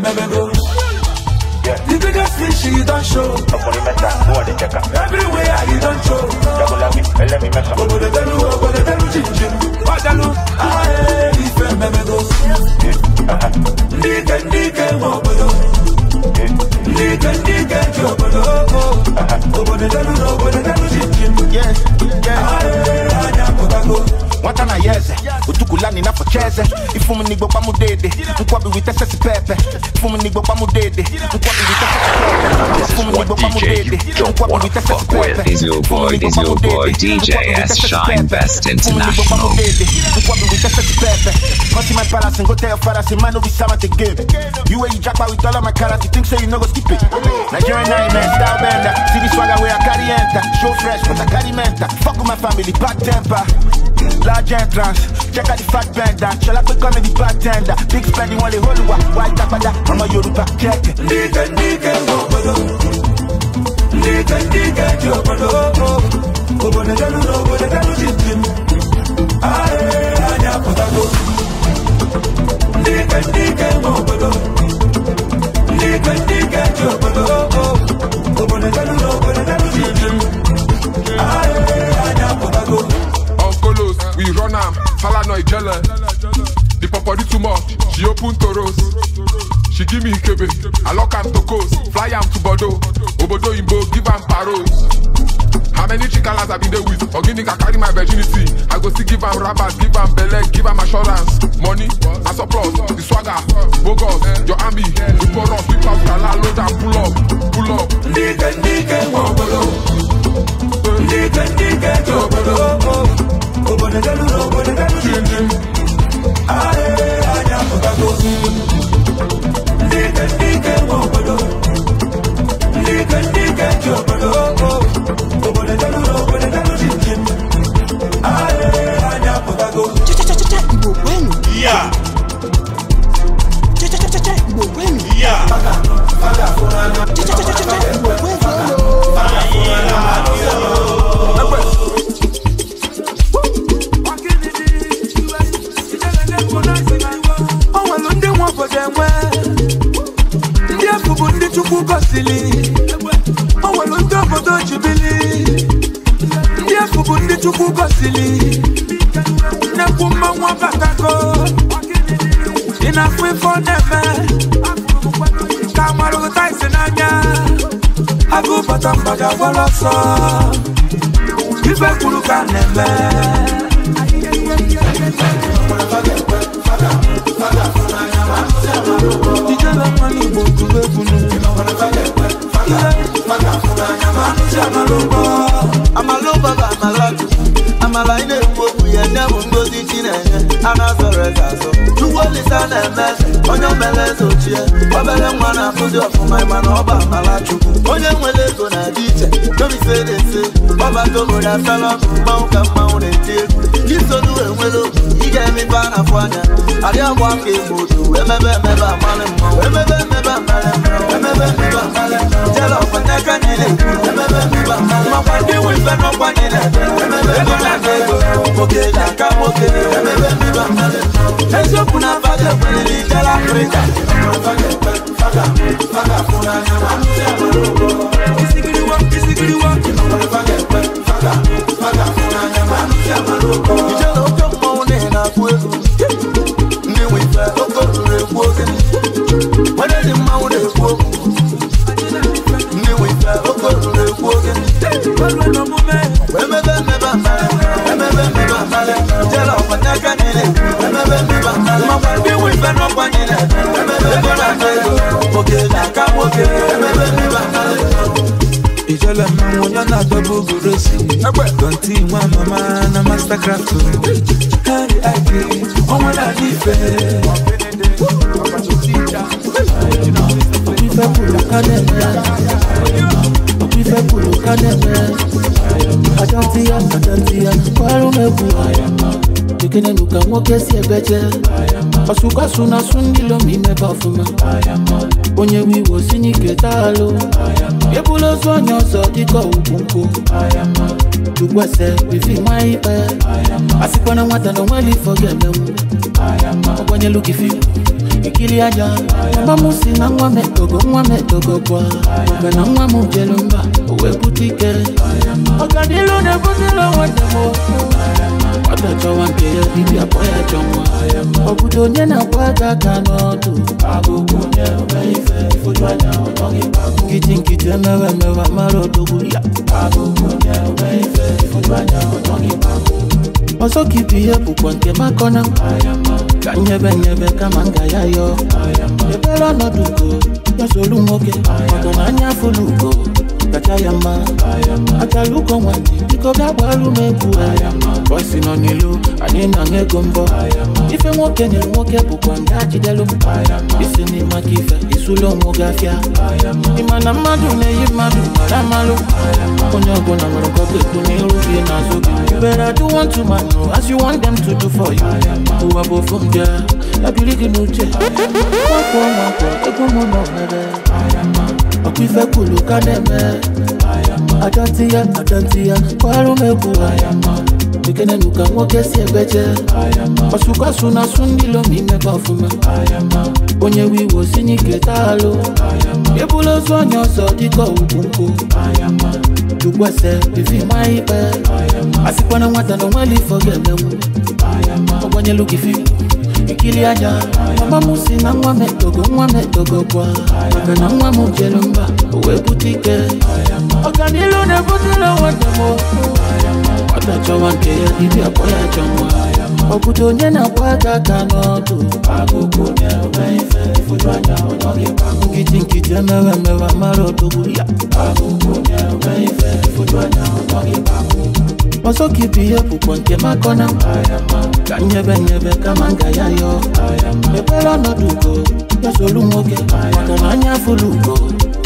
go. Yeah. The biggest don't show. Everywhere you don't show. go wata na yeze udukulani nafocheze ifumu nigbo pamudede nkwabi witesesi pepe ifumu nigbo pamudede nkwabi witesesi pepe ifumu nigbo pamudede nkwabi witesesi pepe is your boy is your boy DJ S Shine Best International nkwabi witesesi pepe Cutting my palace and go tell your father, say, man, no be sama to give. You where you jackpot with all of my carrots, think so, you no go skip it. Nigerian nightmare, style bender. See the swagger where I carry enter. Show fresh, but I carry mentor. Fuck with my family, bad temper large entrance check out the fat bender ṣọlá pé kọ́ mi di bartender big spending wọn lè holùwà wá ìtàpadà ọmọ yorùbá kẹ́kẹ́. níkẹ́ níkẹ́ wọ òbòdò níkẹ́ níkẹ́ di òbòdò òbòdò dẹnu lọ òbòdò dẹnu ti dì mí ayé ayé àpótákó níkẹ́ níkẹ́ wọ òbòdò níkẹ́ níkẹ́ di òbòdò òbòdò dẹnu lọ. we run am falanoy jelle the popodi too much she open to toros she give me ikebe i lock am to coast fly am to Bordeaux obodo oyinbo give am paros. How many chikalas I been there with? Ogini can carry my virginity. I go see give am rabbits, give am belle, give am assurance. Money, and surplus, the swagger, bogus, your army, the porous, whip out, kala, load and pull up, pull up. Nike, nike, wobolo. Nike, nike, jobolo. Obonegelu, Obonegelu, Jim Aye, aye, cha cha cha cha. Yeah. Ibu pata mbaga wala sa Ibe kuluka neme Dijala mani botu bebunu Amaloba ba amalatu Amala ine mbogu ya nyamu ngozi chinenye Ana sore kaso egwu olisa na-eme onye mere eze ochie obere nwa na-akụzi ọfụma na ọba mara chukwu onye nwere ego na-adị iche ọba ọbadomori asala ọkụ mmanwụ ka mmanwụ na-eti egwu isolu enwere obi ị ga-emepe a na-afụ anya arịagba ka egbo otu emebe emebe amalị mmanwụ emebe emebe amalị mmanwụ emebe emebe amalị jere niile emebe emebe amalị makwa ndị nwe ife n'ọkwa niile emebe ego na ego nwoke aka nwoke emebe emebe amalị funa fage pɛrɛlikɛla pereta fage faga faga funa ɲama ɲama lobo kisigiriwa kisigiriwa fage pɛrɛ. craft to me. Kárí àgbè, ọmọ dàbí ìfẹ́. Òbí fẹ́ kúrò kánẹ̀mẹ́. Òbí fẹ́ kúrò kánẹ̀mẹ́. Àjọ ti yá, àjọ ti yá, kọ́ ẹrú mẹ́kù. Ìkíni nkwa so na so ndilo ma imebe ọfụma onye nwe iwu osinye ike taalụ ebula ozu onye ọzọ dịka ugwu nkwụ ugwese ifi ma ikpe asịkwana nwata na onweli ifo ga-emenwu ọkwanyelu gị fi ikiri aja mama m si na nwa m etogo nwa m etogo kwa mgbe na nwa m jelu mba o wee ọ̀gàdínlò ní bùsùlù wọn dẹ̀ mọ́. ọ̀dọ̀jọ́ wọn kì í bíbí àpọ̀yà jọ wọn. ọ̀bùdó yẹn náà wá gàgà náà dùn. agogo yẹn ọbẹ̀ ìfẹ́ ìfojú àjà ọ̀tọ́ kí pàgọ́. kìtìkìtì mẹ́wàá mẹ́wàá má lọ dogun yá. agogo yẹn ọbẹ̀ ìfẹ́ ìfojú àjà ọ̀tọ́ kí pàgọ́. ọsọkìtì yẹ púpọ̀ nke makọ́nà. kanyebẹnyebẹ kama nga ya yọ. ebere ọnọdụ ugo yọsọ olu nwoke ọgọ n'anya fụlụ ugo kachayama achaluko nwanyi biko bịa gbaru m egwu bọsi nọ n'ilu anyị na ego mbọ ife nwoke nyere nwoke bụkwa ndị ajidelu m isi n'ime aka ife isulo onwe gị afịa ịma na mmadụ na-eyi mmadụ mara amalụ onye ọbụla nwere nkọta ekwu n'iru gị n'azụ gị bere adụ want to man as you want them to do for you ụwa bụ ofu m bịa ya biri gị n'uche nwakwọ nwakwọ egwu m nọ nwere okwife kwuru ka na-eme adọtị ya adọtị ya kwarụ m egwu ekene nuka nwoke si egbeje ọsụkọsụ na asụ ndị lomi imebe ọfụma onye wiwo si n'ike taalụ ebula ozu onye ọzọ dịka ugwu nkwụ jukwese bivima ikpe asịkwana nwata na onweli ifo ga-emenwu ọgbanyelu gị fimu ekili aja mama m si na nwa m nwa m etogo gwa na nwa m jere mba o wee ọganilu na-ebutela nwata m nwata chọwa nke ya dibịa kpọ ya chọ nwa onye na-akwa aka aka n'ọdụ nkịtị nkịtị emewe emewe mara odogwu ọzọ ka ibu ihe bụkwa nke makọ na ka nyebe nyebe kama nga ya yo mepere ọnọdụ ugo ya solu nwoke maka na anya afụla ugo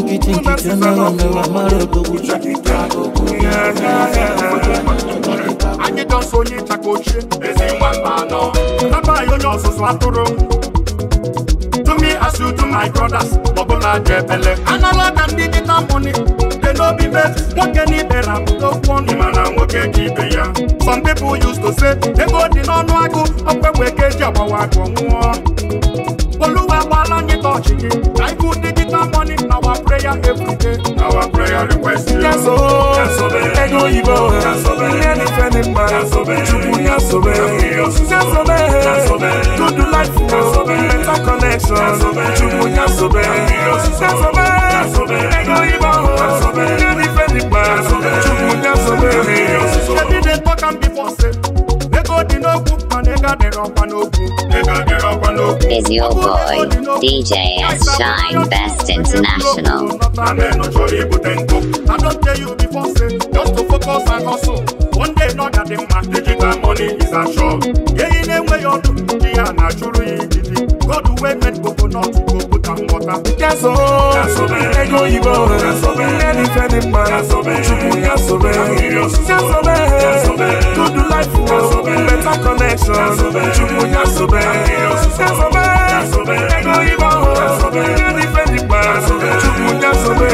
Ukitinki tena namewa mara dogu Anyị dọsọ onye ịchaka ochie Ezi nwa mba anọ Naba ya onye ọsụsụ atụrụ asị to my brothers bụla dị ebele anala ka m digital money dị n'obi be nwoke n'ibe na abụta okwu ọnụ mana nwoke dị ibe ya some people used to say ego dị n'ọnụ agụ ọkwa egbe ka eji agbawa agụ nwụọ oluwa agbaala onye dị our prayer every day. Our prayer request. Yaso, Yasobe, Edo Ibo, Yasobe, Nyani Fenimba, Yasobe, Chubu Yasobe, Yasobe, Yasobe, Good Life, Yasobe, oh. Better Connection, Yasobe, Chubu Yasobe, Yasobe, Yasobe, Edo Ibo, Yasobe, Nyani Fenimba, Yasobe, Chubu Yasobe, Every day talk and be for sale dị n'okwu mana ego adịrọ ọkwa n'okwu Is your boy DJ S Shine Best International? I don't tell you before, say, just to focus and hustle. One day, not that they my digital money is a show. Yeah, in a way, you do, yeah, God, the way men go, go, not go. Yasobe, Ego Ibo, Any Fenny Man, Chupu Yasobe, Yasobe, Good Life, Better Connection, Chupu Yasobe, Yasobe, Ego Ibo, Any Fenny Man, Chupu Yasobe,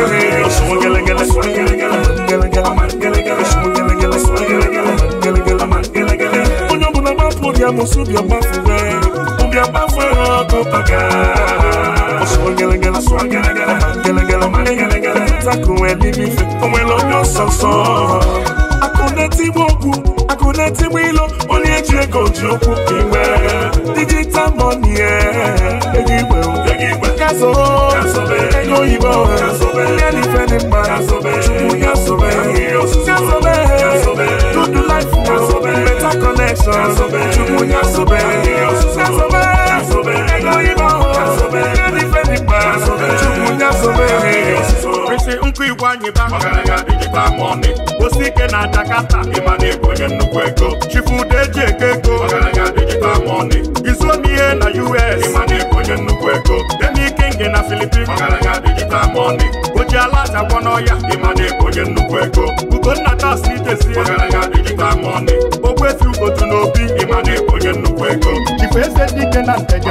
Gele Gele, Gele Gele, Gele Gele, Gele Gele, Gele Gele, Gele Gele, Onye ọbụla gbapụ ya mụsụ bịa gbafụ wee, ụbịa gbafụ ya ọkụ paka swagala gala swagala gala gala gala mane gala gala takun e bibi fe ọmọ ẹlọjọ sọsọ. akọ̀dé tí mo kú akọ̀dé tí mo lọ ó ní ẹjẹ gòjì òkú kí n wẹ̀. digital money ẹ̀ ẹ̀gí gbẹ̀ o ẹ̀gí gbẹ̀ kásọ̀ ẹ̀gí òyìnbó ẹ̀ ẹ̀lẹ́ni fẹ́ ni pa. nkụ igwe anyị ba osi ike na Jakarta ịma na ego onye nnukwu ego chifude eji eke ego izuomihe na US ịma na ego onye nnukwu ego demikingi na Filipin oji ala achakwa n'ọya ịma na ego onye nnukwu ego ugonna tasitezie ogwezi ugotu n'obi ịma na ego onye nnukwu ego chifu eze dike na nteje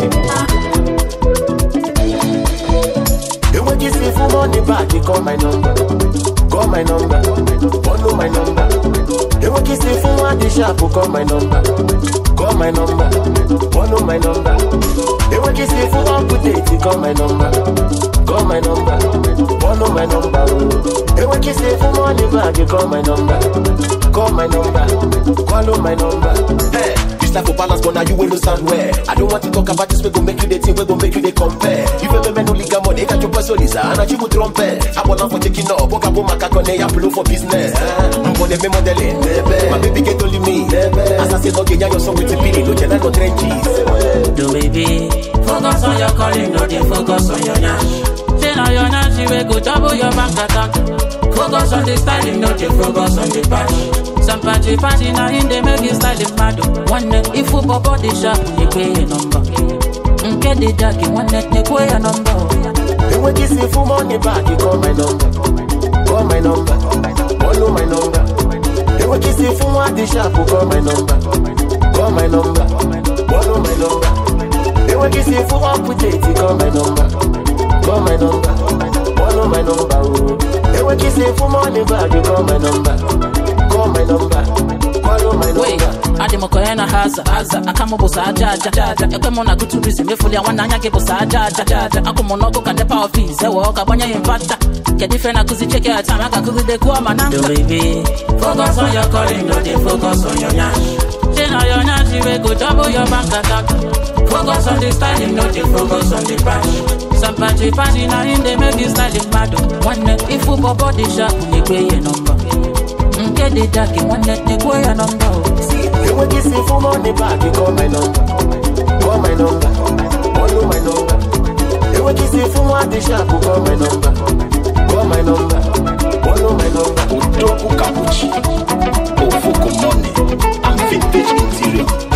I'm on the back, they call my number. Call my number. Follow my number. They will kiss the phone at they shop, call my number. Call my number. Follow my number. They will kiss the phone up they call my number. Call my number. Follow my number. They will kiss the phone on back, they call my number. Call my number. Follow my number. Hey. This life for balance, but now you will stand where. I don't want to talk about this, we gon' make you the team. we gon' make you the compare. You ever men only got money, got your personaliza, and I you trumpet. I want for taking up, book up on my cacone, I blow for business. I'm for the me modeling, my baby get only me. As I say, okay, yeah, your song with the pili, no channel, no trenches. Do baby, focus on your calling, no, they focus on your nash. Say now your nash, you will go double your bank attack. Focus on the styling, not the focus on the patch. Some patchy patchy now in they make it styling mad. Oh. One neck, if you pop out the shop, you pay a number. Mm, get the jacket, one neck, they pay a number. They will kiss me you money back, you call my number. Call my number. Follow my number. They will kiss me you want the shop, you call my number. Call my number. Follow my number. They will kiss me you want put it, you call my number. Call my number. know my number. Oh. They want kissing say for money, but you call my number. want adị m ka onye na ha aza aza aka m bụsa aja aja ekwe m na gụtụrizi mefuli ya nwanne anya gị bụsa aja aja akụ m n'ọkụ ka nepa ọfis ewe ọka gbanye ya mpata kedu ife na-akụzi cheke ya taa maka akụgide gụọ ma Focus on your calling, dey focus on your na your wey go double your bank account. Focus on the dey focus on the party make you ifu egwe ihe nọmba. get the jack in one let me go your number. See, you will kiss me for money back, you call my number. Call my number. Follow my number. You will kiss me for money sharp, you call my number. Oh, call my number. Follow my number. Oh, Utoku Kabuchi. Ofoko money. I'm vintage interior.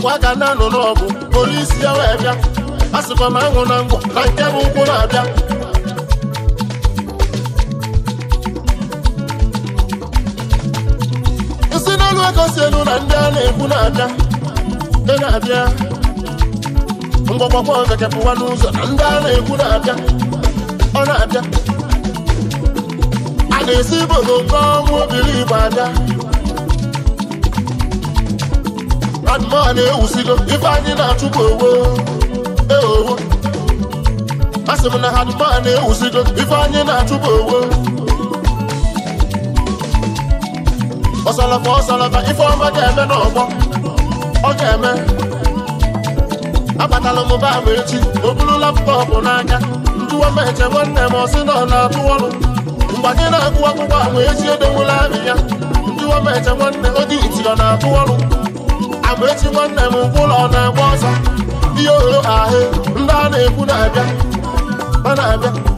ọkwa ka na-anụ n'ọgụ polisi ya wee bịa a sịkwa m anwụ na ngwọ na nke bụ ụkwụ na-abịa isi n'elu ego si elu na ndị a na-ekwu na-abịa ndị na-abịa mgbagbakwa ọzọ kepụwa n'ụzọ na ndị a na-ekwu na-abịa ọ na-abịa a na-esi ibodo nke ọnwụ obiri igbo abịa mmadụ eh, oh, oh. eh, oh, eh, a na-ewusigo ife anyị na-achụpụ owo eowo asị m na hadụma a na-ewusigo ife anyị na-achụpụ owo ọsalafa ọsalafa ife ọma ga-eme n'ọgbọ ọ ga-eme abatala m ba ma echi o buru laptọpụ n'aka njụwa meche nwanne m ọsị na ọ na-atụ ọrụ mgbe anyị na-agụ akwụkwọ ahụ echi edowela amị ya njụwa meche nwanne ọ dị iti ọ na-atụ agbaechi nwanne m ngwa ụlọ na-agba ọsọ ihe ohe ahụ ndị a na-ekwu na-abịa a na-abịa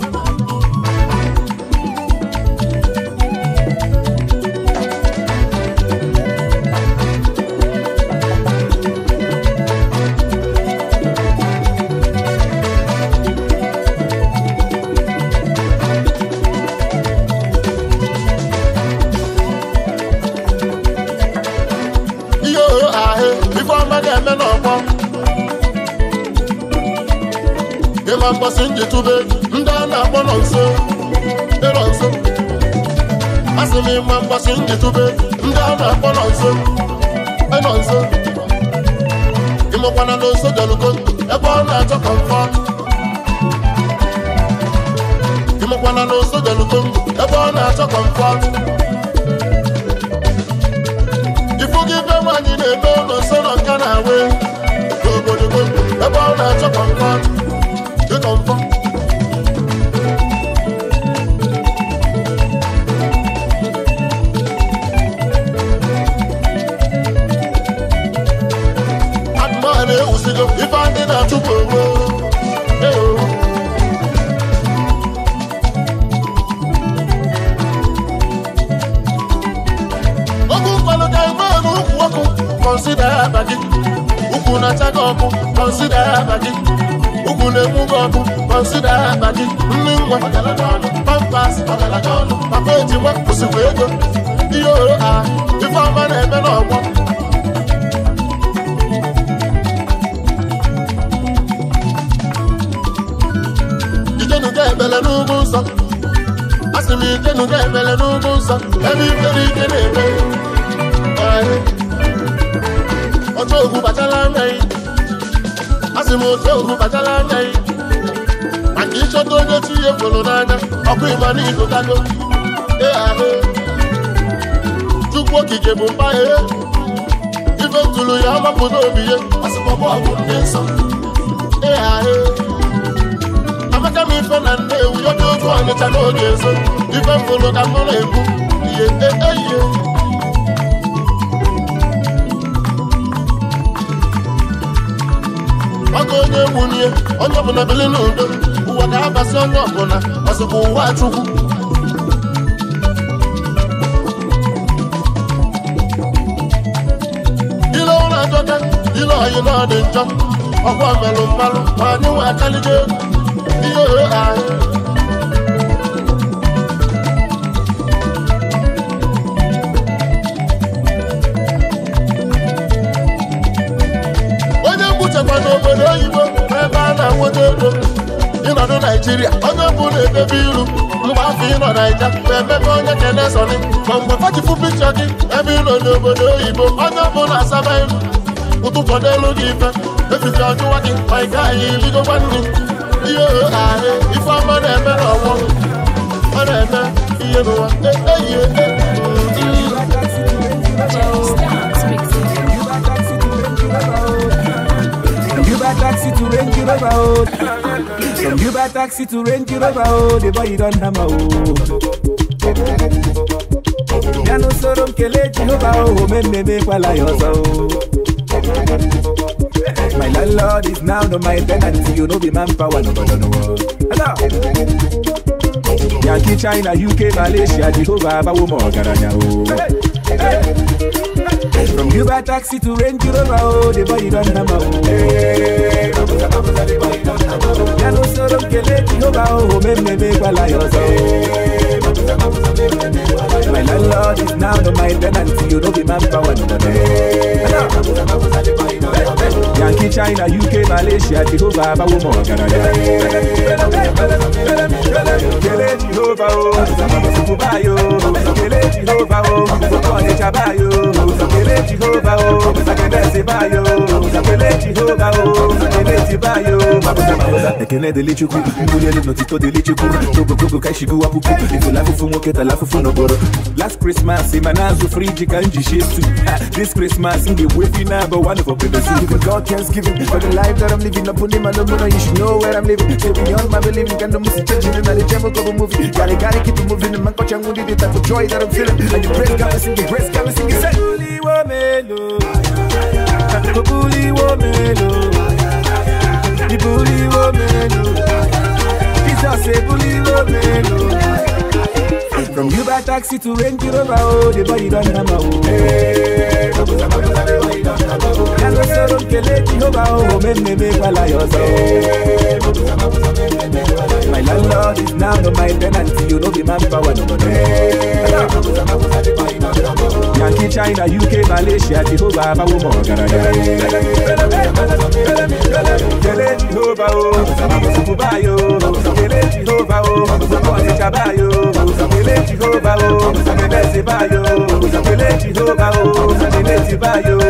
ebube ndị a na-akpọ nọ nso ịrọ nso asị m ịma mgbasi njitube ndị a na-akpọ nọ nso ịnọ nso ịmụkwana na nso jọlugo ebe ọ na-achọ kọmfọt ịmụkwana na nso jọlugo ebe ọ na-achọ kọmfọt ifu gị be nwaanyị na-eme ụlọ nso nọ nka na awe n'obodo ebe ọ na-achọ kọmfọt Hausa ẹni lórí kéde pé ayé ọjọ́ ògùn bàjẹ́ láńlẹ̀ yìí a sì mú ọjọ́ ògùn bàjẹ́ láńlẹ̀ yìí àti iṣẹ́ tó ń dé tí yé ọkùn ìmọ̀ ní ìlú kájọ ẹ àhẹ chukwu okike bụ mba ihe ife tulu ya ọmapụta obi ya asịkpọbọ ọgwụ ndị nsọ ẹ àhẹ ife na nne nnewu odogo ọnịcha n'oge ezo ife mfụrụ ka mụ na-ekwu ihe eyihe ọga onye nwunye onye ọbụla bili n'udo ụwa ga-abasị onye ọbụla ọsịkwa ụwa chukwu ile ụra adọka ile oyi na ọ dị njọ ọkwa melụ mmalụ ma anyị nwe akaligo egwu ịnọdụ naijiria onye bụ na-edebe iru mgbe afọ ịnọ naija ma emebe onye kene sọni ma mgbe fachifu pikchọ gị ebe ịnọ n'obodo oyibo onye bụ na-asaba iru ụtụtụ n'elu gị ife efife ọjụwa gị ma ị gaghị irigokwa nri ndị ohe ahụ ifeọma na-eme n'ọnwụ ọ na-eme taxi to Range Rover, oh. From Uber taxi to Range Rover, oh. The boy don hammer, oh. Ya no soro nkele Jehova, oh. Memme mekwala ya ọzọ, oh. My landlord is now no my tenant, you know be manpower, no, no, no, no. Hello. Yankee, China, UK, Malaysia, Jehovah, Bawo, Morgaranya, oh. Hey, hey. From Uber taxi to Range Rover, oh, the boy don't know, oh. Hey, Babuza, Babuza, the boy don't know, oh. Yano soro kele Jehovah, me me me, wala yozo. Hey, Babuza, Babuza, me me me, wala My landlord is now not my tenant, you don't be manpower no more. Yankee, China, UK, Malaysia, Jehovah, Abawo mọ̀ Canada. Kele Jehovah o, Sùkú báyò, Kele Jehovah o, Sùkú ọ̀nẹ́jà báyò. sakele Jehovah o sakele sibayo sakele Jehovah o sakele o. mabuza mabuza ekene delete ku mbulele notito delete ku gogo gogo kai shigu apuku ifu lafu fu nwoke ta lafu fu noboro last christmas ima na-azụ friji ka m ji shie stu this christmas m ga-ewu efi na aba one for baby soup God thanksgiving for the life that I'm living up on him I don't know you should know where I'm living so beyond my believing can no music change me na the jam of move movie gotta gotta keep it moving man kocha ngudi the type of joy that I'm feeling and you praise God sing it, praise God sing it wo melo. Go bully wo melo. bully just a bully romelo. From Uber taxi to Range Rover, oh, the body don't number. Hey, Hello, sir, okay, lady, hoba, oh, men, me, me, while I also. My landlord is now no my tenant, you know the manpower, no money. Yankee, China, UK, Malaysia, Jehovah, my woman, Canada. Jehovah, oh, Jehovah, oh, Ele Jehova o, mo se kaba yo. Ele Jehova o, mo bese ba yo. Ele Jehova o, mo bese ba yo.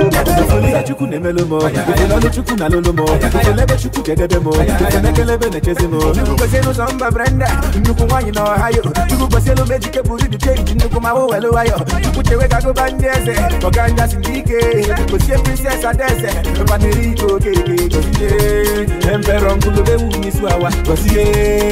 Ifole chukwu na-eme lomo, ifole ọnụ chukwu na lolomo, ifole ebe chukwu kedebe mo, ifole ekelebe na-echezi mo. Chukwu kwesị n'ụzọ mba Brenda, nnukwu nwaanyị na Ohio. Chukwu kwesị elu meji keburu dị cheji nnukwu ma wo welu wayo. Chukwu chewe ka gụba ndị eze, ọganja si ndị ike. Chukwu sie princess adeze, mpaniri ike okeke. Gozie, emperor ngulube wu n'isi awa, gozie.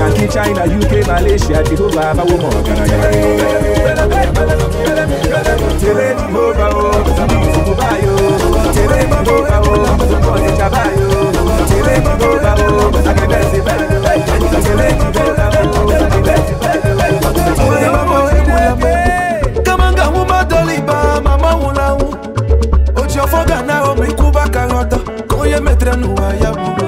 Yankee, China, UK, Malaysia, Jehovah, Bawo, Morgan, Tere Jehovah, oh, Fukubayo, Tere Jehovah, oh, Fukubayo, Chabayo, Tere Jehovah, oh, Sakebesi, Tere Jehovah, oh, Sakebesi, Tere Jehovah, Kamanga huma doliba mama wulawu Ojo foga na omi kuba karota Koye metre nuwa yabu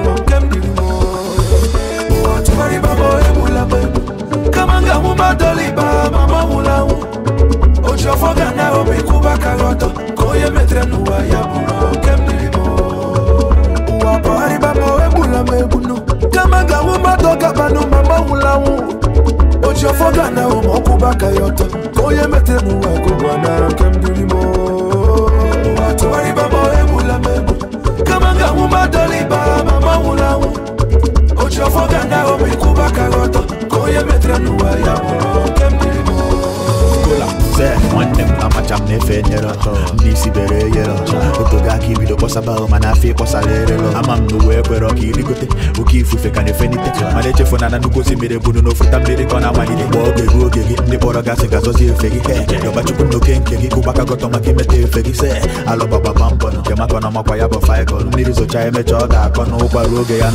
ndoliba mama mulamu ojofoga na omikubaka goto koyemetrenuwa ya buno kemnilimo wapari bamawe bulame bunu kamaga wumatoka banu mama mulamu ojofoga na omokubaka yoto koyemetrenuwa kobwana kemnilimo wapari bamawe bulame bunu kamaga wumatoka banu mama mulamu ojofoga na omikubaka goto onye metere n'ụwa ya nwanne m amacha na-efe isi bere eyere aka ibido kpọsaba ahụ mana ama m ọka oke ifufe na echefu na na mmiri ọ na-amalite gba oge ruo oge gị ndị kpọrọ gasị ga efe gị na oke nke gị maka imeta efe gị se nke maka na ya mmiri emecha ọ ga-akọ oge ya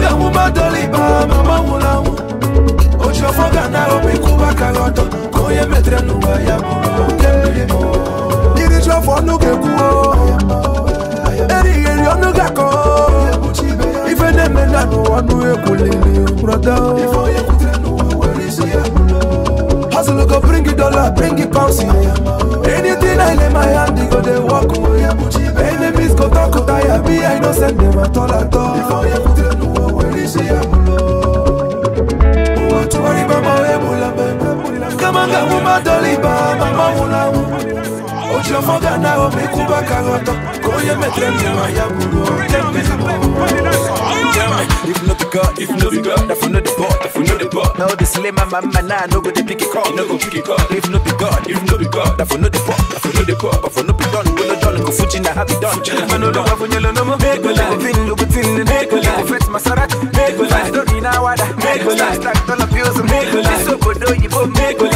Nanga mumadoli ba mama mulamu Ochofoga na opikuba kagoto Koye metre nuwa ya mo Kelimo Iri chofo nuke kuo Eri eri onu gako Ife neme nanu wanu ekulili Brother Ifo yekutre nuwa werisi ya e mulo Hustle go bring it dollar, bring it pounds Anything I lay my hand, they go they walk away Enemies go talk, go tire, be I innocent, never told at all Before you put bisi ya bulo watu walibamba webula bebe kama ngamu madoliba mamamulamu ojomoga nawo mikuba kagoto koye metre mema ya bulo tembisimo If not the God, if not the God, I found the pot we know the ball. No, the slay my man now, no go the picky it up, no go picky it If no be God, if no be God, that for no the pop, that for no the pop, but for no be done, we no done, go fuji na happy done. I know the have No yellow no more. Make go like, pin no but in the make go like, fet masarat, make go like, don't need No wada, make go like, stack dollar bills, make go like, so go do you both make go like.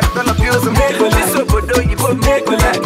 collect, collect.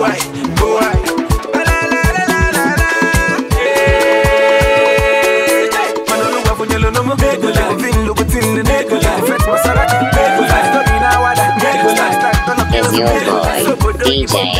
go your boy DJ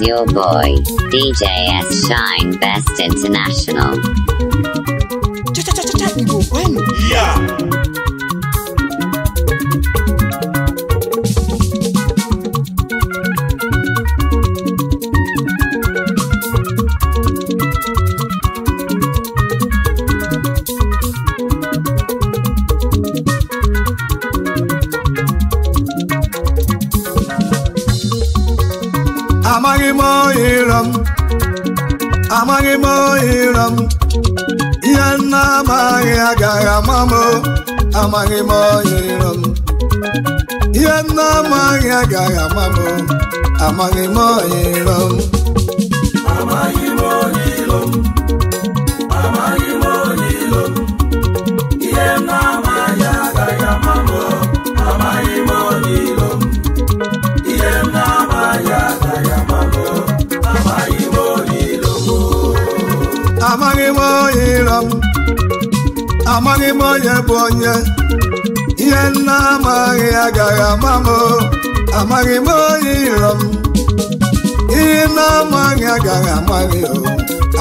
is your boy, DJ S. Shine Best International. Yeah! amaghị m ọyịrịrọ m ihe m na-amaghị agaghị ama m amaghị m ọyịrịrọ m amaghị m onye bụ onye ihe nna amaghị agaghị ama m amaghị m onye iro m ihe nna amaghị agaghị amaghị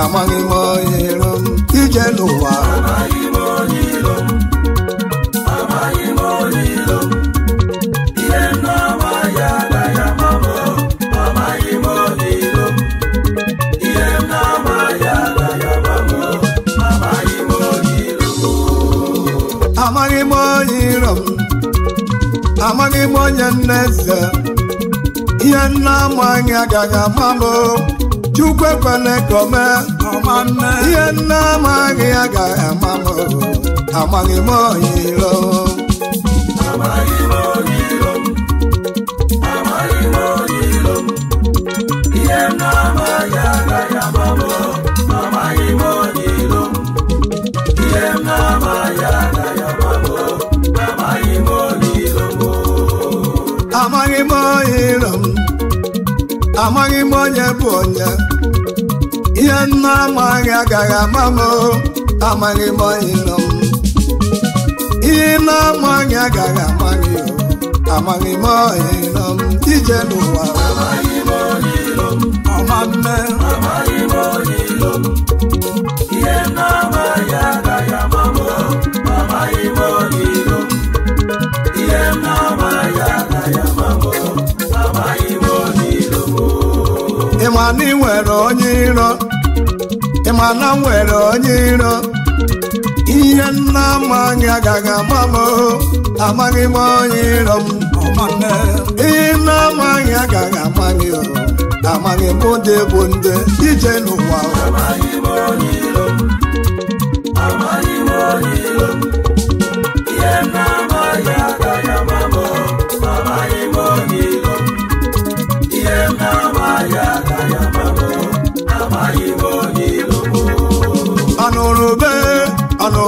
amaghị m onye iro m ije n'ụwa amaghị m onye nneze ihe nna ama anyị agaghị ama m chukwu ekwele ka ihe nna ama anyị agaghị ama m amaghị m onye iro amaghị m onye bụ onye ihe nna amaghị agaghị ama m amaghị m onye nọ m ihe na-amaghị agaghị amaghị amaghị m onye nọ m ije n'ụwa ọma mme onye iro ịma na m nwere onye iro ihe nna amaghị agaghị ama m amaghị m onye iro m ihe nna amaghị agaghị ama gị amaghị m ndị bụ ndị ije n'ụwa amaghị m onye iro m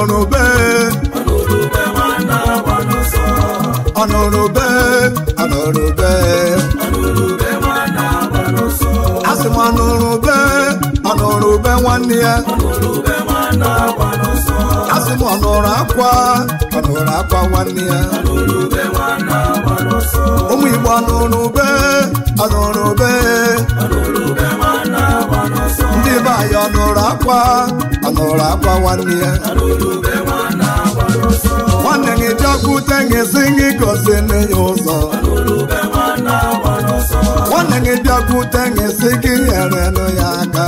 ọnụbe ọnụrụbe ọnụrụbe asị m ọnụrụbe ọnụrụbe nwanne ya asị m ọnụrụ akwa ọnụrụ akwa nwanne ya ụmụ Igbo ọnụrụbe ọnụrụbe nwaanyị ọ akwa ọ akwa nwanne ya nwanne gị jekwute gị si gị gosi ya ụzọ nwanne gị bịakwute gị si gị nyerenụ ya aka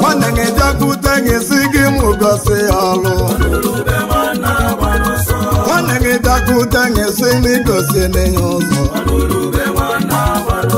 nwanne gị gị si gị ya ọlụ nwanne gị bịakwute gị si gị gosi nne ụzọ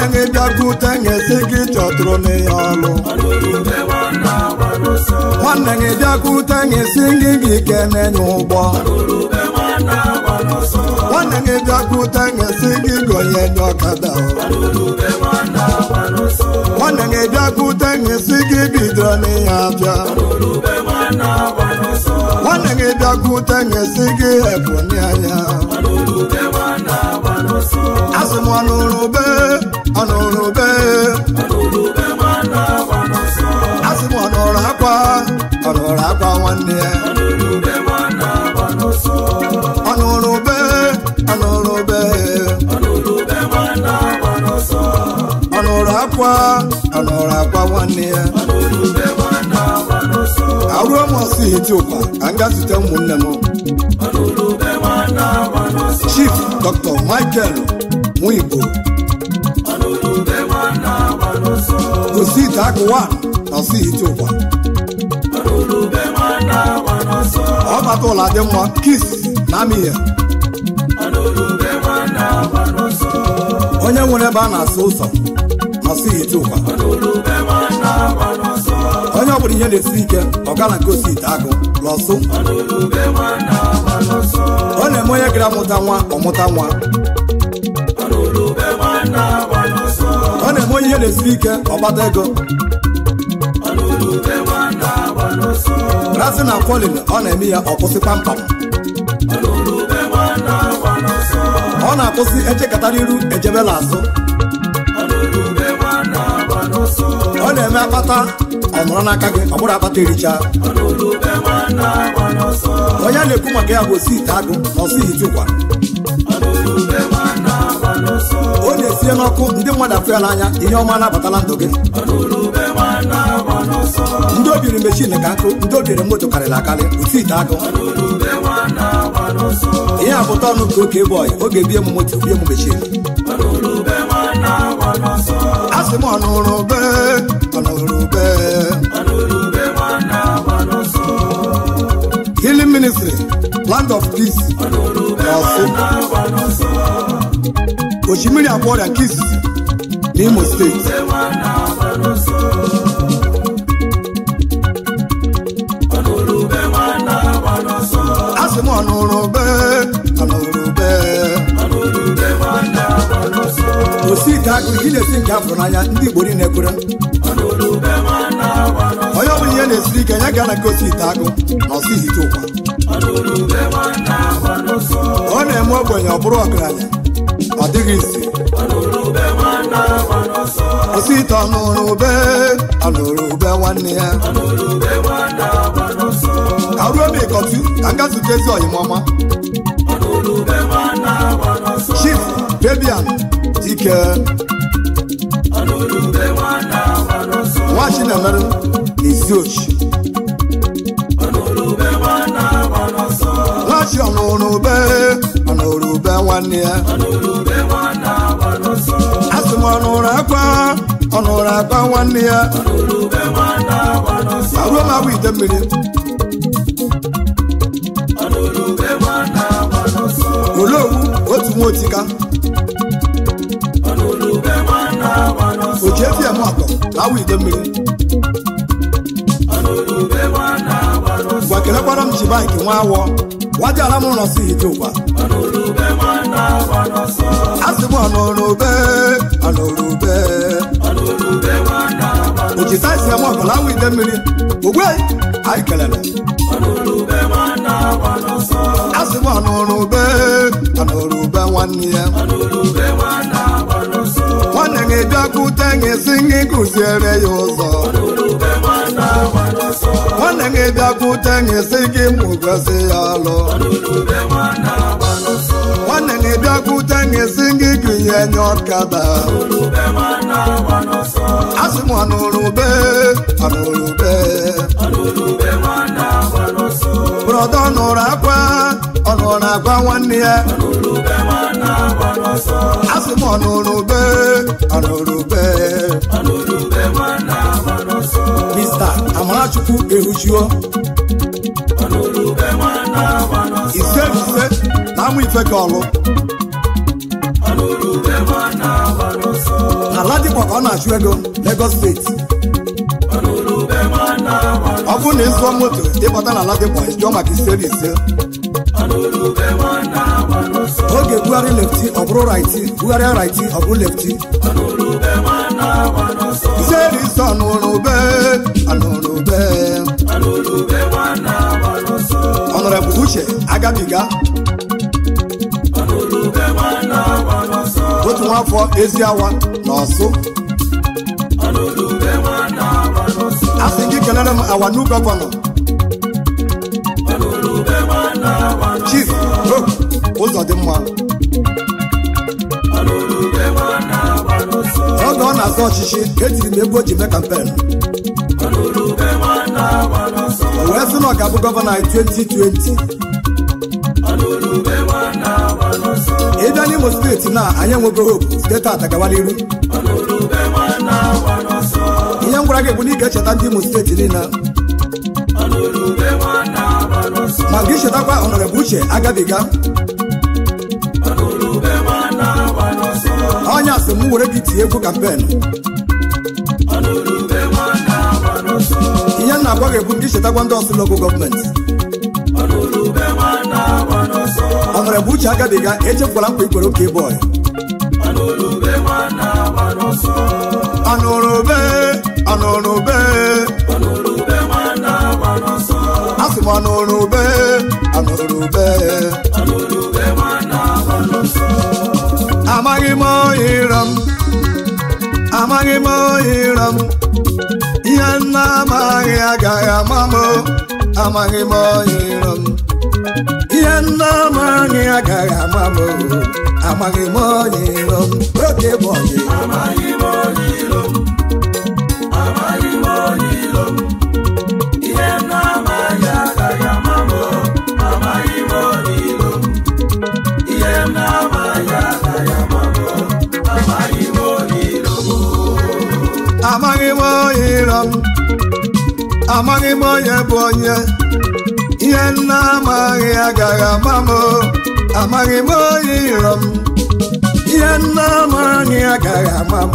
nwanne gị bịakwute ga-esi gị chọtụrụ na ya ọlụ nwanne gị bịakwute ga-esi gị gị kene n'ụgbọ nwanne gị bịakwute ga gị gonye n'ọkada nwanne gị bịakwute ga gị bidoro abịa nwanne gị bịakwute esi gị ebonyi anya asị m ọnụrụbe m akwa ọnụrụ akwa nwanne ya ọnụrụbe ọnụrụbe ọnụrụ akwa ọnụrụ akwa nwanne ya aruo m ọsọ hiti ụkwa gaa zute ụmụnne m Chief Dr. Michael Nwigbo gosi ite akụwa n'ọsọ hiti ụkwa ọ bata ụlọ dị mma kis na amịhịa onye nwere ebe a na asa ụzọ n'ọsọ hiti ụkwa onye ọbụla ihe na-esi ike ọgana nke osi ite akụ lọsụ ọ na-eme onye gara amụta nwa ọmụta nwa ọ na-eme onye ihe na-esiri ike ọgbata ego rasị na kwolin ọ na-eme ya ọkwụsị kpamkpam ọ na-akwụsị echekatara iru ejebela azụ ọ na-eme akpata ọ nọrọ n'aka gị ọ bụrụ akpata ericha onye na-ekwu maka ya bụ osi ite agụ na ọsị ite ụkwa o na-esie n'ọkụ ndị mmadụ afọ ya n'anya ihe ọma na-abatala ndụ gị ndị obiri mechin ka nkụ ndị obiri moto karịrị akarị osi ite agụ ihe a abụta ọnụ nke oke bọyị oge bie m moto bie m mechin a sị m ọnụrụbe ọnụrụbe land of kiss ọ̀fun òṣìmírì àbọ̀dà kiss ní Imo State. a sì mọ̀ ọ̀nà ọ̀rọ̀ bẹ́ẹ̀ ọ̀nà ọ̀rọ̀ bẹ́ẹ̀. kò sí ìta kiri kí lè sí nke afọ n'anya ndị Igbo niile kwere. onye ọ bụla ihe na-esiri ike nye gara gosi ite agụ na ọsịghị ite ụkwa ọ na-eme ogbenye ọ bụrụ ọgaranya ọ dịghị isi kwụsị ite ọnụrụ ube ọnụrụ ube nwanne ya ka ruo m ịkọtu ka m gazutezi ọyịmọma chief Fabian Dike nwa Chinemere na Iziochi si ọnụrụbe ọnụrụbe nwanne ya asị m ọnụrụ akwa ọnụrụ akwa nwanne ya aruo m agwa ite mmiri olee owu otu nwa otika oji efi ya m akọ na awa ide mmiri gwa kelekwara m ji bankị nwa awọ wajara m nọsọ ije ụwa asị m ọnụrube ọnụrube ojita isi m ọbụla nwa ide mmiri ogbe anyị kelere asị m ọnụrube ọnụrube nwanne ya nwanne gị bịakwute gị si gị kụziere ya ụzọ nwanne gị bịakwute si gị mụgosi ya alụ nwanne gị bịakwute gị gị gụnye nye ọkada asị m ọnọdụ ọ nụrụ akwa ọ nụrụ agwa nwanne ya asị m ọnụrụ ube ọnụrụ ube mista amarachukwu ehujuo ise ise na amụ ife ka ala dịkwa ka ọ na-achụ ego legos steeti bụ na ịzụọ moto ịbata na ala dịkwa jụọ maka ise na ise oge bugharị lefti ọ bụrụ raiti bugharịa raiti ọ bụrụ lefti iseri ise ọnụrụbe anụrụbe ọnụrụbụ uche agabiga otu nwa afọ ezi awa na ọsụ asị kelere m awa new gọvanọ chief bro ụzọ dị mma oge ọ na-azọ ọchịchị etiri m ego o ji mee kampen o wee sị na ọ ga-abụ gọvanọ anyị 2020 ị n'Imo steeti na anyị enweghị hope steeti atagawala iru m gwara gị bụ na ị ga-echeta ndị Imo steeti niile ma gị chetakwa ọnọrọbụ uche agabiga ọnya sị m were gị tinye egwu kampen ihe na-agwa gị bụ gị chetakwa ndị ọsụ lokal gọọmenti ọnọrọbụ uche agabiga echefukwala mkpa ikwere oke bọị anụrụbe asị m anụrụbe anụrụbe amaghị m ọhịra m amaghị m ọhịra m ihe nna amaghị agaghị ama m amaghị m ọhịra m ihe nna amaghị agaghị ama m amaghị m ọhịra m oke bụ ọhịra amaghị m onye bụ onye ihe nna amaghị agaghị ama m amaghị m onye iro m ihe nna amaghị agaghị ama m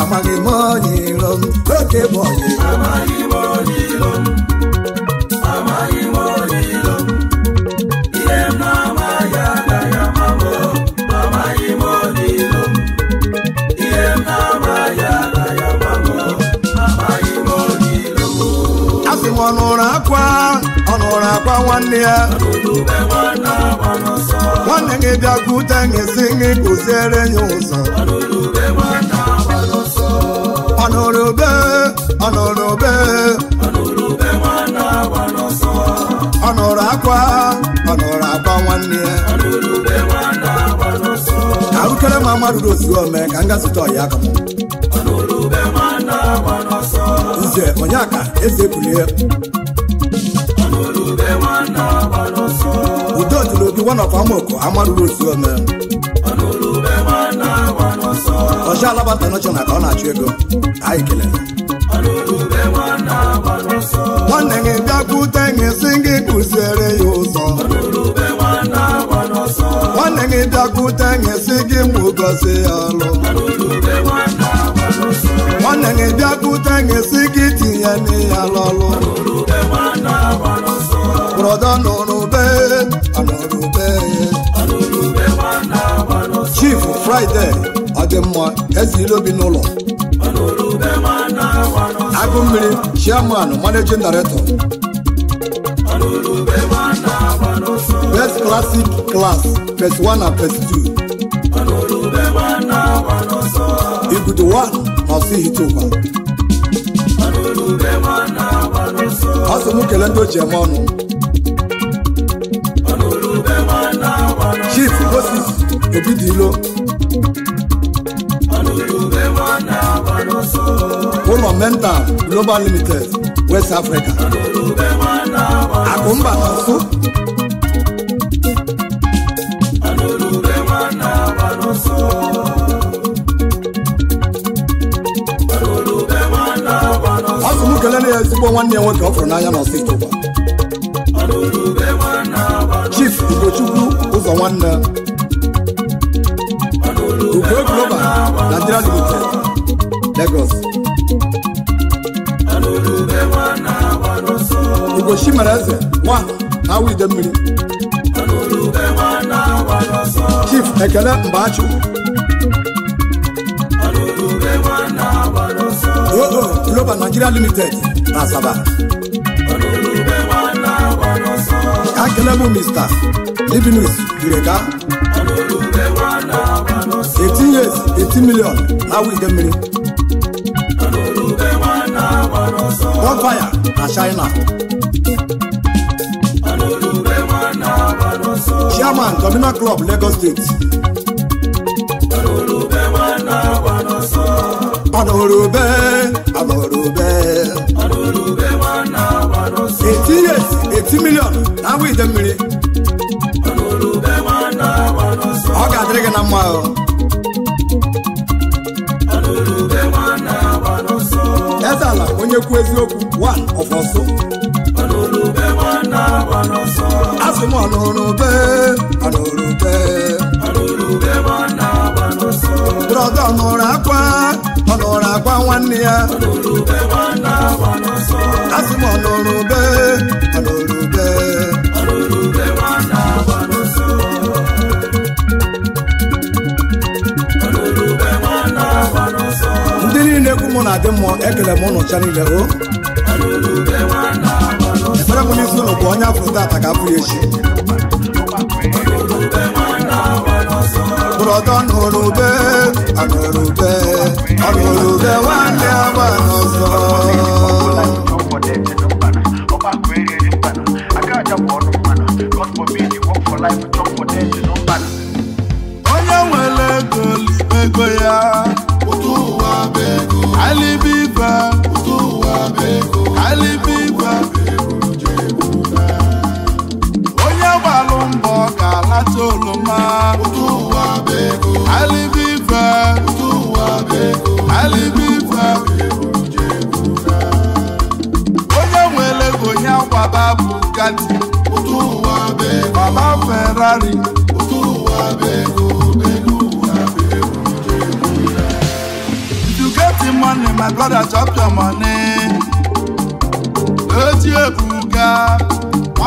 amaghị m onye iro m oke bụ onye nwa nwanne ya nwanne gị bịakwute gị si gị kụziere ya ụzọ ọnụrụbe ọnụrụbe ọ nụrụ akwa ọ nụrụ akwa nwanne ya ahụkere ma mmadụ ozuo ome ka m zụta ọya aka nze onye aka one of Amoko, Amadu Road Suome. Ọcha alabata nọchọna ka ọ na-achụ ego anyị kelere nwanne gị bịakwute gị si gị ya ụzọ nwanne gị bịakwute gị si gị mụ ya gị bịakwute gị si gị tinye n'iya n'ọlụ brọda nụrụ fraịde ọdịmma eze ilobi n'ụlọ agụ mmiri chairman managing director best classic class phase and phase two igudu one n'osighitukwa ọ sị m kele ndị oji eme ọnụ chief Oromenta Global Limited West Africa. Akumba Nasu. Asụ m kelele ya ezigbo nwanne ya nwoke ọ fụrụ n'anya na steeti ụwa. Chief Ugochukwu ụzọ nwanne. Ugo Global Nigeria Limited. Lagos Igosi mereze nwa awụ ide mmiri Chief Ekele Mbachu oo Global Nigeria Limited na Asaba bụ Mr. Livinus Ireka 18 years 18 million na-awụ ide mmiri bonfire na china. chairman domina club lagos state. panorube anorube. eighty years eighty million na we dey mmiri. ọ ga-adịrị gị na mma ọnọdụ ala onye kwuo eziokwu one of ọsọ asị m ọnụrụbe ọnụrụbe brọda ọnụrụ akwa ọnụrụ akwa nwanne ya asị m mmiri na-ekwu mụ na-adị mmụọ ekele m ụnụ niile o ekpere m n'isi ụlọ bụ onye afọ tata ka afụ echi brọdọ nụrụbe anụrụbe ọnụrụbe nwanne agba n'ọzọ soloma utuwa beko alibifa utuwa beko alibifa onye nwere onye babu, bugatti utuwa beko baba ferrari utuwa beko you get the money my brother chop your money eti ebuga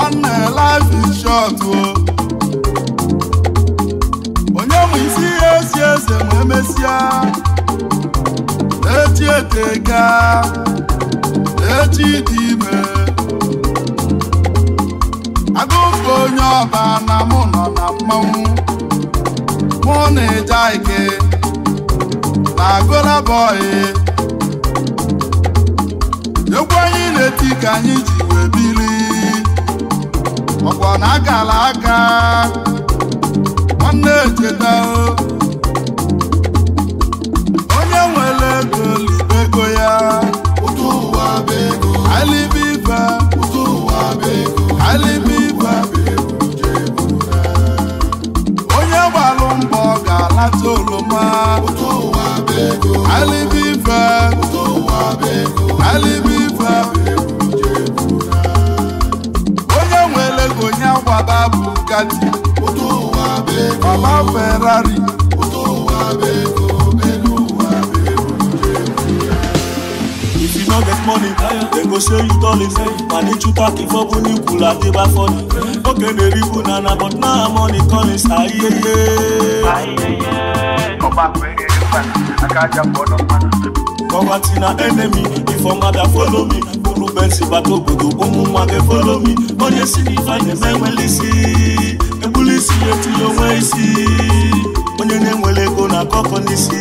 one uh, life is short o. Oh. ma isi ihe esi eze ma emesịa echi eteka echi dị ime agụpụ onye ọba na mụ nọ na mmanwụ mụ na eja ike na agụlabọị egwu anyị na-eti ka anyị ji wee bili ọkwa na agala aka ọ na onye nwere ego libego ya alibiba alibiba onye gbalụ mbọ ga-alata oroma alibiba alibiba onye nwere ego nye gbaba bụ gati bàbá Ferrari. If you no get money, dem go show you dollies. Pàdé chuta kí fọ́bù ní kùlà dé bá fọ́ ni. Ó kéde rí banana but now money calling ayẹyẹ. Ayẹyẹ. Ọba pẹ̀lú ẹ̀ka akájà pọ̀ náà mọ́nà. Poverty na enemy, if a mother follow me. Kúrú bẹ́ǹsì bàtò gbòdò, ó mú màgẹ́ follow me. Bọ́dé sí ni fàyè mẹ́wẹ́lì sí i. na-etinye onwe isi onye na-enwere ego na akọkọ n'isi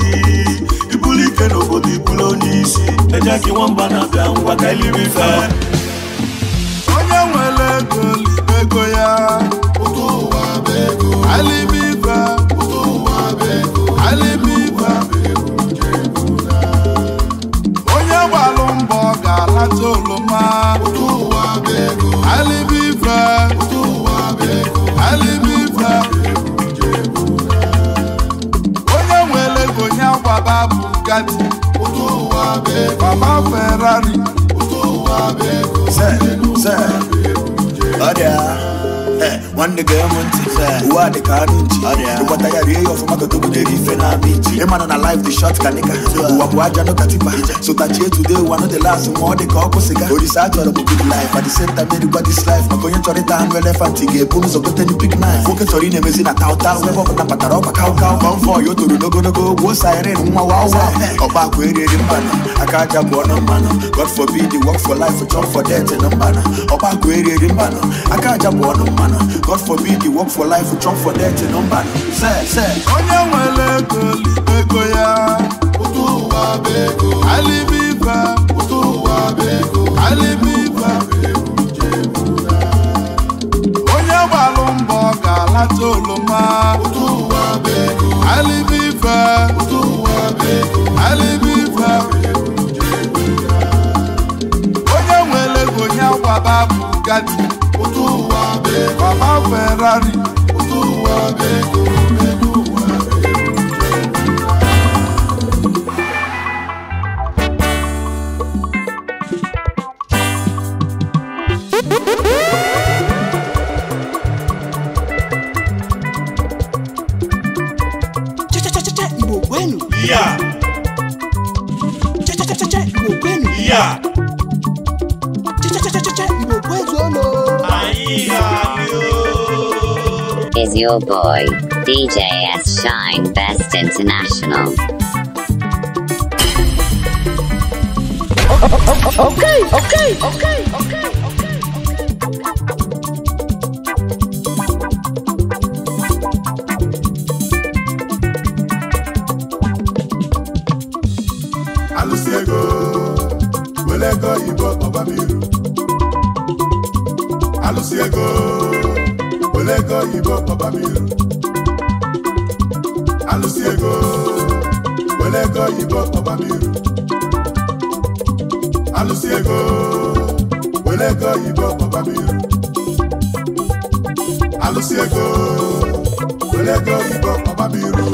ibulu ike n'obodo ibulu onye isi eja gị nwamba na-abịa ngwa ka eliri fe. onye nwere ego ego ya alimiba alimiba onye gbalụ mbọ ga-alata oroma alimiba alibiba onye nwere ego nye agbaba bugatti mama ferrari se se ọrịa nwanne gee m ntị uwe a dịka anụ nji ịgbata ya rie ya ọfụma goto butere ife na ama iji ịmana na life dị short ka nịka ụwa bụ aja nụka tipa sotachie today ụwa nọ dị last ma ọ dị ka ọkụ sịga orisa a chọrọ bụ good life at the same time erikwa this life maka onye chọrọ ịta anụ elefant ga-ebu ụzọ gote ndị pik nine nwoke chọrọ ị na-emezi na tauta ebe ọbụla batara ọkwa kaụkaụ kọmfọ ya o toro n'ogologo ogwo siren nwa wawa ọkpa akwa erieri mmanụ aka aja bụ ọnụ mmanụ god forbid work for life chop for death na mmanụ ọkpa akwa erieri mmanụ aka aja bụ ọnụ mmanụ God forbid you work for life, you chop for death, you don't bad. Say, say. Onye nwere ego libego ya. Ụtụ ụwa bụ ego. Alibiba. Ụtụ ụwa bụ ego. Alibiba. Onye gbalụ mbọ ga-alata oloma. utu ụwa bụ ego. Alibiba. Ụtụ ụwa bụ ego. Alibiba. Onye nwere ego ya gbaba bụ gadi. baba ferrari Igbo kwenu ya chechecheche Igbo kwenu ya chechecheche Igbo kwezuolo anyị ya is your boy, DJ S. Shine Best International. Okay, okay, okay, okay. Alụsiego, ego ego oyibo papa m iru alụsị ego were oyibo papa m iru alụsị ego were oyibo papa m iru alụsị ego were oyibo papa m iru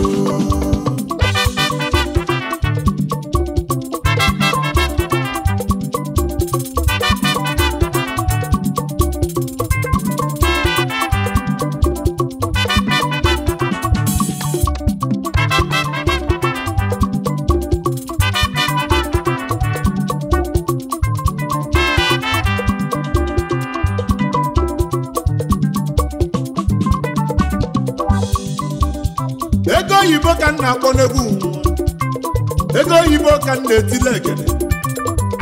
na-etile egede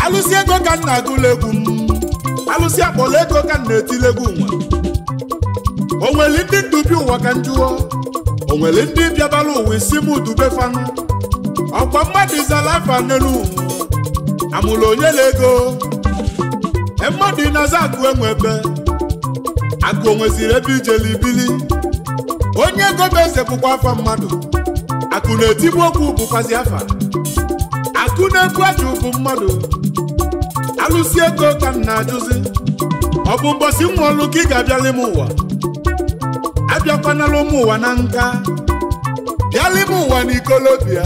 alụsị ego ka m na-agụla egwu m alụsi akpọla ego ka m na-etile egwu nwa o nwere ndị ndubi ụwa ka njụọ o nwere ndị bịabala ụwa isi m dube fanụ ọkwa mmadụ izala afa n'elu amụla onye na ego e mmadụ ịnaza akụ enwe ebe akụ onweziri ebe ijele ibili onye ego bụ eze bụkwa afa mmadụ akụ na-etibụ okwu bụkwazi afa na-ekwu achụ bụ mmadụ alụsi ego ka m na-ajụzi ọ bụ mgbọsi nwa ọlụ ka ị ga-abịali ime ụwa abịakwanala ụmụ ụwa na nka Biala ime ụwa na ikolobịa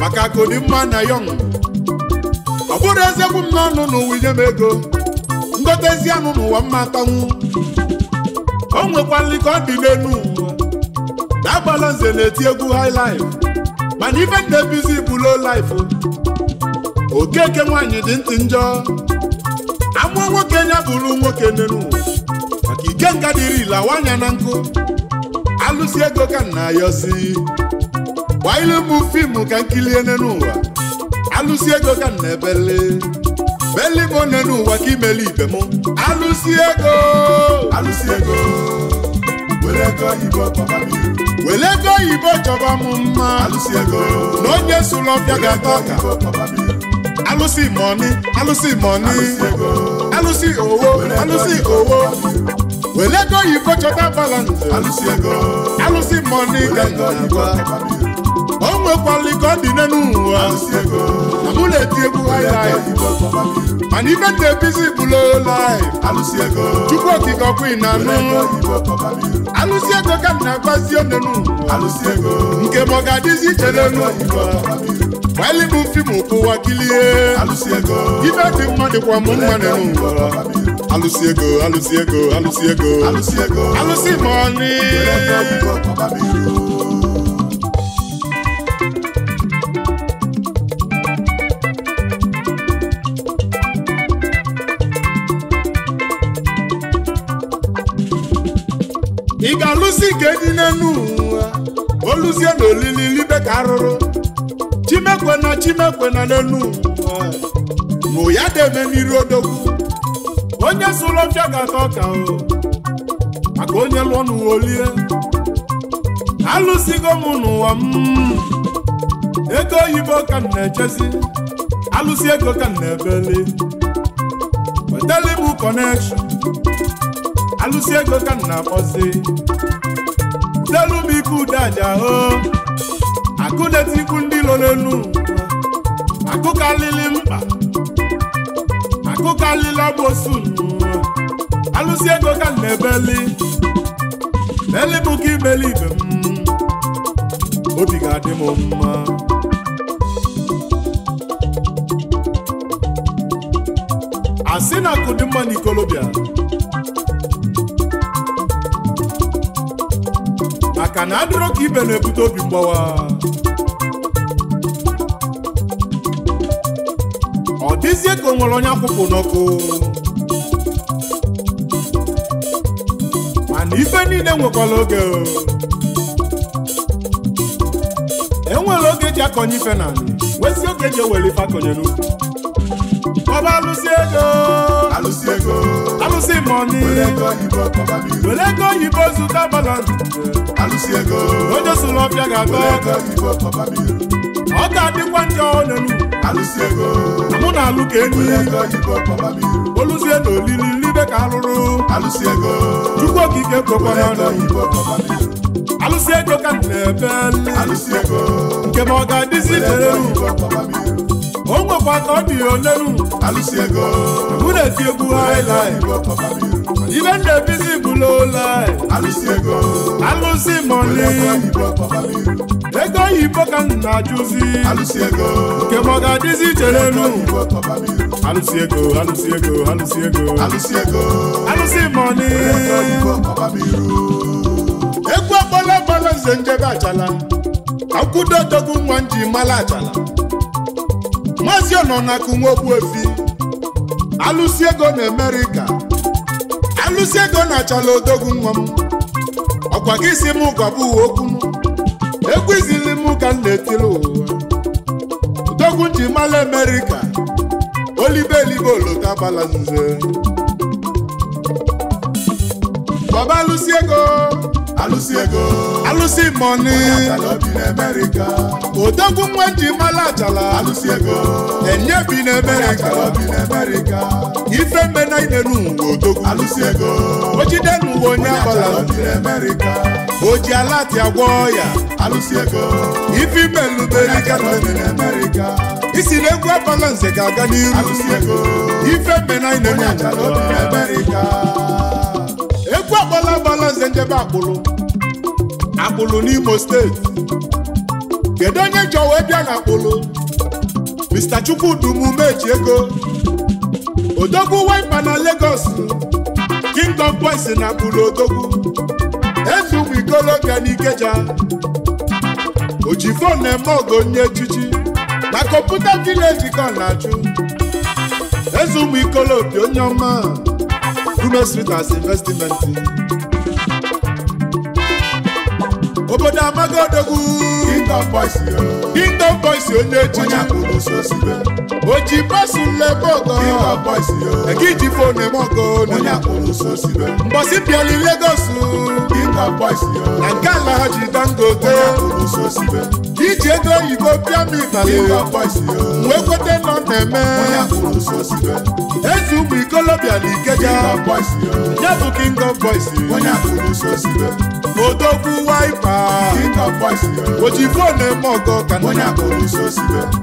maka akụdị mma na yọng ọ bụrụ ezegbu m n'ọnụ n'ụwa inye m ego ngotezi anụ n'ụwa mma atanwu o nwekwalị ka ọ dị n'elu ụwa na-agbala nze na-eti egwu haịlaịf mana ife dị ebizi bụ low life okeke nwaanyị dị ntị njọ amụọ nwoke ya bụrụ nwoke n'elu maka ike nga dịrị ile na nkụ alụsi ego ka nna ya osi gbaa ilu fiimu ka nkilie n'elu ụwa alụsi ego ka nna ebele beli ụwa ka imeli ibe m alụsi ego alụsi ego wele ego oyibo chọba m iru ego oyibo chọba m mma alụsị ego na onye sụlọbịa ga-ata ọka alụsị mọni alụsị mọni alụsị owo alụsị owo wele ego oyibo chọta balance alụsị ego alụsị mọni ga-ata ọka nwekwala ike ọ dị n'elu ụwa na mụ na-eti egwu mana ibe dị ebizi bụla olaị chukwu okike ọkụ ị na-anụ alụsị ego ka m na-agbazi onenu nke m ọ ga-adịzi iche n'elu gbalịbụ fim ụwa kilie ibe dị mma dịkwa m mma n'elu alụsị ego alụsị ego alụsị ego alụsị ma ọnụ chimekwe na n'elu nụ ya deme n'iru odogwu onye sụrụ ọfịa ga-ata ọka o maka onye lụọ n'ụwa olie alụsigo m n'ụwa m ego oyibo ka m na-echezi alụsi ego ka m na-ebeli wetali m kọnekshọn alụsi ego ka m na-akpọzi telu m ike ude aja o akụdetikwu ndị lọ n'elu akụkalili mkpa akụkalili ọgbosu alụsi ego ka m na-ebeli beli bụ ka ibeli ibe m obi ga-adị m mma asị na akụ dị mma n'ikolobịa maka na adịrọ ka ibe na-ebute obi mgbawa ezie ka nwere onye akwụkwụ n'ọkụ mana ife niile nwekwara oge enwere oge eji akọnye ife na wezi oge eji ewere ife akọnye n'ukwu ọba alụsị ego alụsị ego alụsị mọni were ego oyibo zụta balansi alụsị ego onye sụrụ ọbịa ga-agọ ọ ga-adịkwa ndị ọnelu alụsi ego mụ na alụ ka enyi oluzie na olili nribe ka alụrụ alụsi ego chukwu okike kwekwara ọnelu alụsi ego ka m na-ebe nke ma ọ ga-adịzi chere o nwekwa ka ọ dị onelu alụsi ego mụ na-eti egwu haịlaị Even the busy below lie. Alusi ego. Alusi money. obodo oyibo ka m na-ajụzi nke m ọ ga-adịzi chere elu alụsị ego alụsị ego alụsị ego alụsị mọni egwu agbala agbala nze njebe achala akwụdo dogu nwa nji mala achala maazị ọnọ na akụ nwa okwu efi alụsị ego na Amerịka alụsị ego na achala odogwu nwa m ọkwa gị si m gọbụ okwu m egwu izila udogwu ka m na etiri ụwa udogwu ji mala Amerịka olibe elibe olota gbala nze baba alụsị ego alụsị ego alụsị mọni Amerịka odogwu nwe ji mala achala alụsị ego enye bi n'Amerịka Amerịka ife mbe na inenu uwe odogwu alụsị ego ojide n'uwe onye abala nze o ji alati agwọ ọya alụsị ego ife imeluberiga isi na egwu ebala nze ga-aga n'iru alụsị ego ife mbenanyị na-enye achara obi n'Amerịka egwu akpọla abala nze njebe akpụlụ akpụlụ n'Imo steeti kedu onye chọwa ịbịa na akpụlụ Mr. Chukwudi Umeji ego odogwu waipa na Lagos Kingdom Boys na akpụlụ odogwu Maazị Ụmụikoloka n'Ikeja Ojifon na-eme ogo nye echichi na kọmputa vileji ka na aju Eze Ụmụikoloka onye ọma Gume Street as investment obodo Amagọdogwu Kingdom Boys Kingdom Boys onye echichi oji pasu nlebe ọgọ Kingdom Boys ege iji eme onye akpụrụ so sibe mbọsị bịara Lagos Kingdom Boys na nke ala ha ji dangote onye akpụrụ so sibe iji ego oyibo pịa m ifali wee kwete nọ na-eme ezi ụmụ ikolobịa na ikeja ya bụ king of boys odogwu waipa ojibụ na-eme ọgọ ka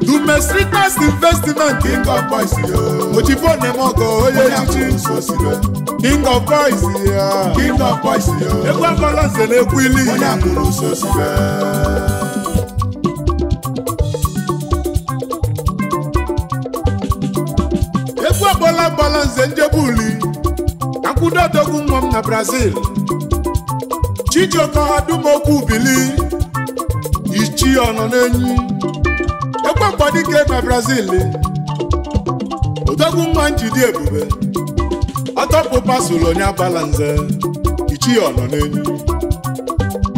dumesritas investment ojibụ na-eme ọgọ onye echichi king of boys ya egwu agbala nze na egwu ili nze njebuli akwụdo odogwu nwa m na brazil chijioka dumokwu bili ichi ọnọ n'enyi ekwe ị na brazil odogwu nwa njidi ebube ọtọpụ pasụl onye abala nze ichi ọnọ n'enyi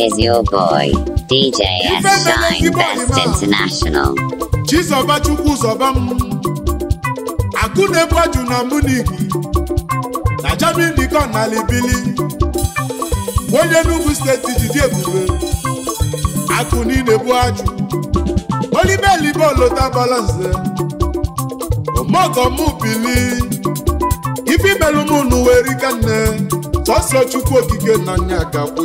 is your boy, DJ S. Shine Best International. Chizoba Chukwu Zoba m Akụnebu Aju na Munich na Germany ka na bili. onye Enugu steeti jide ebube akụ niile bụ ajụ olibelibe olota balanse omogom bili n'ụlọ ife imelụmụnụ nne. sọsọ Chukwu okike na nya gakwụ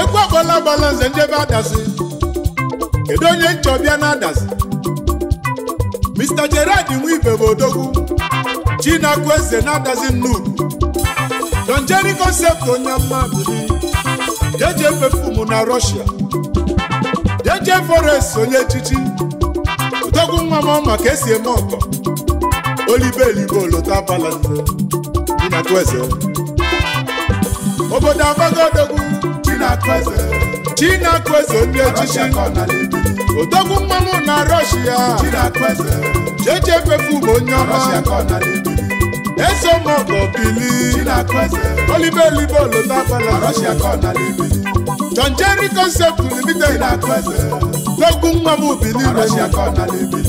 ekwu agbala agbala nze njebe adasị kedu onye nchọbịa na adasị Mr. jared Nwibe bụ odogwu Chinakwu eze na-adazi nnukwu Don Jerry concept onye mmadụ jeje perfume na Russia jeje forest onye echichi odogwu nwa m maka esi eme ọkọ olibelibo lota balanze Chinakwu eze obodo abago odogwu chineke eze ndị echichi odogwu mmanwụ na rọshia jeje fefe onye ọma eso mọgọ bili olibe elibe olodabala dogwu mmanwụ bili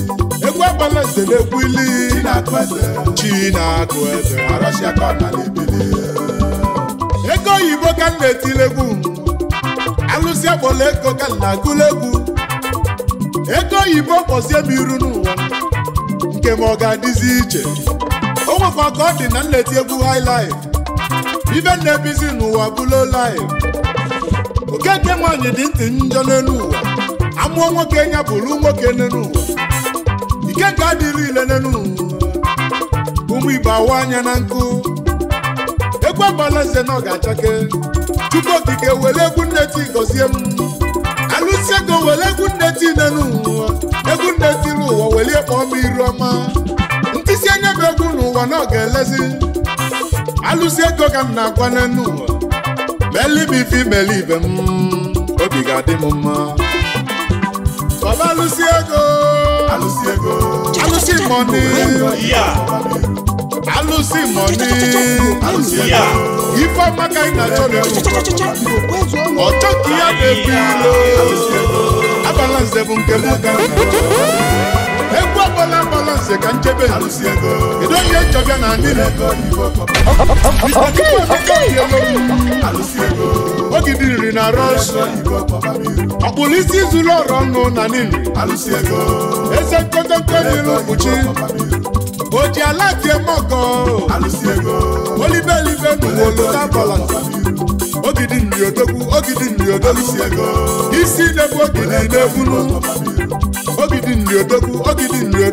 egwu agbala zere egwu ili chineke ego oyibo ka m na-etile egwu alụsị akpọla ego ka na agụlegwu ego oyibo kpọzie m iru n'ụwa nke ma ọ ga-adịzi iche o nwekwa ka ọ dị na nleti egwu highlife ibe na-ebizi n'ụwa bụlo live okeke nwaanyị dị ntị njọ n'elu ụwa amụọ nwoke ya bụrụ nwoke n'elu ụwa ike ka adịrị ile n'elu ụwa ụmụ igbo awa anya na nkụ egwu agbala eze na ọ ga-achake chukwu okike were egwu nne ti gọzie m alụsị ego were egwu nne ti nne n'ụwa egwu nne ti n'ụwa welie kpọọ m iru ọma ntịsi anya bụ egwu n'ụwa na ọ ga-elezi alụsị ego ka m na-agwa n'enu ụwa melibe ife ibe m obi ga-adị m mma baba alụsị ego alụsị ego alụsị mọni losing money. Ifeoma ka ị na-achọ na-ewu. Ọchọ ka ya na-ebu ilo. Abalanse bụ nke m ka egwu agbala abalanse ka nchebe kedu onye chọbịa na anịlị na rọs ọkpụrụ oji ala tie mọgọ olibelibe o libe ogidi nri odogwu ogidi nri odogwu isi gidi ogidi na-ebulu ogidi nri ogidi nri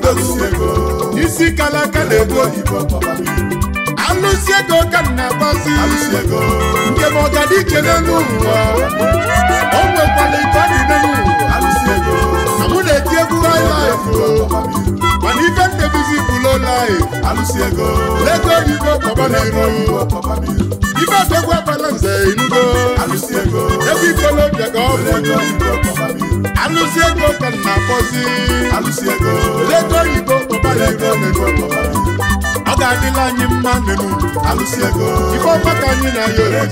isi kala aka na-ebu oyibo alụsi ego ka m na-agbazi njem ọganiche n'elu ụwa o nwekwara ike ọ dị n'elu ụwa na na-eti egwu highlife mana ife ndebizi life alụsị ego lego oyibo kọba n'iru ibe adogwa balanze inugo alụsị ego ebe ikolobịa ga ọbụ alụsị ego ka nna akpọzi alụsị ego lego oyibo kọba n'iru anyị mma n'elu alụsị ego ife ọma ka na ya ego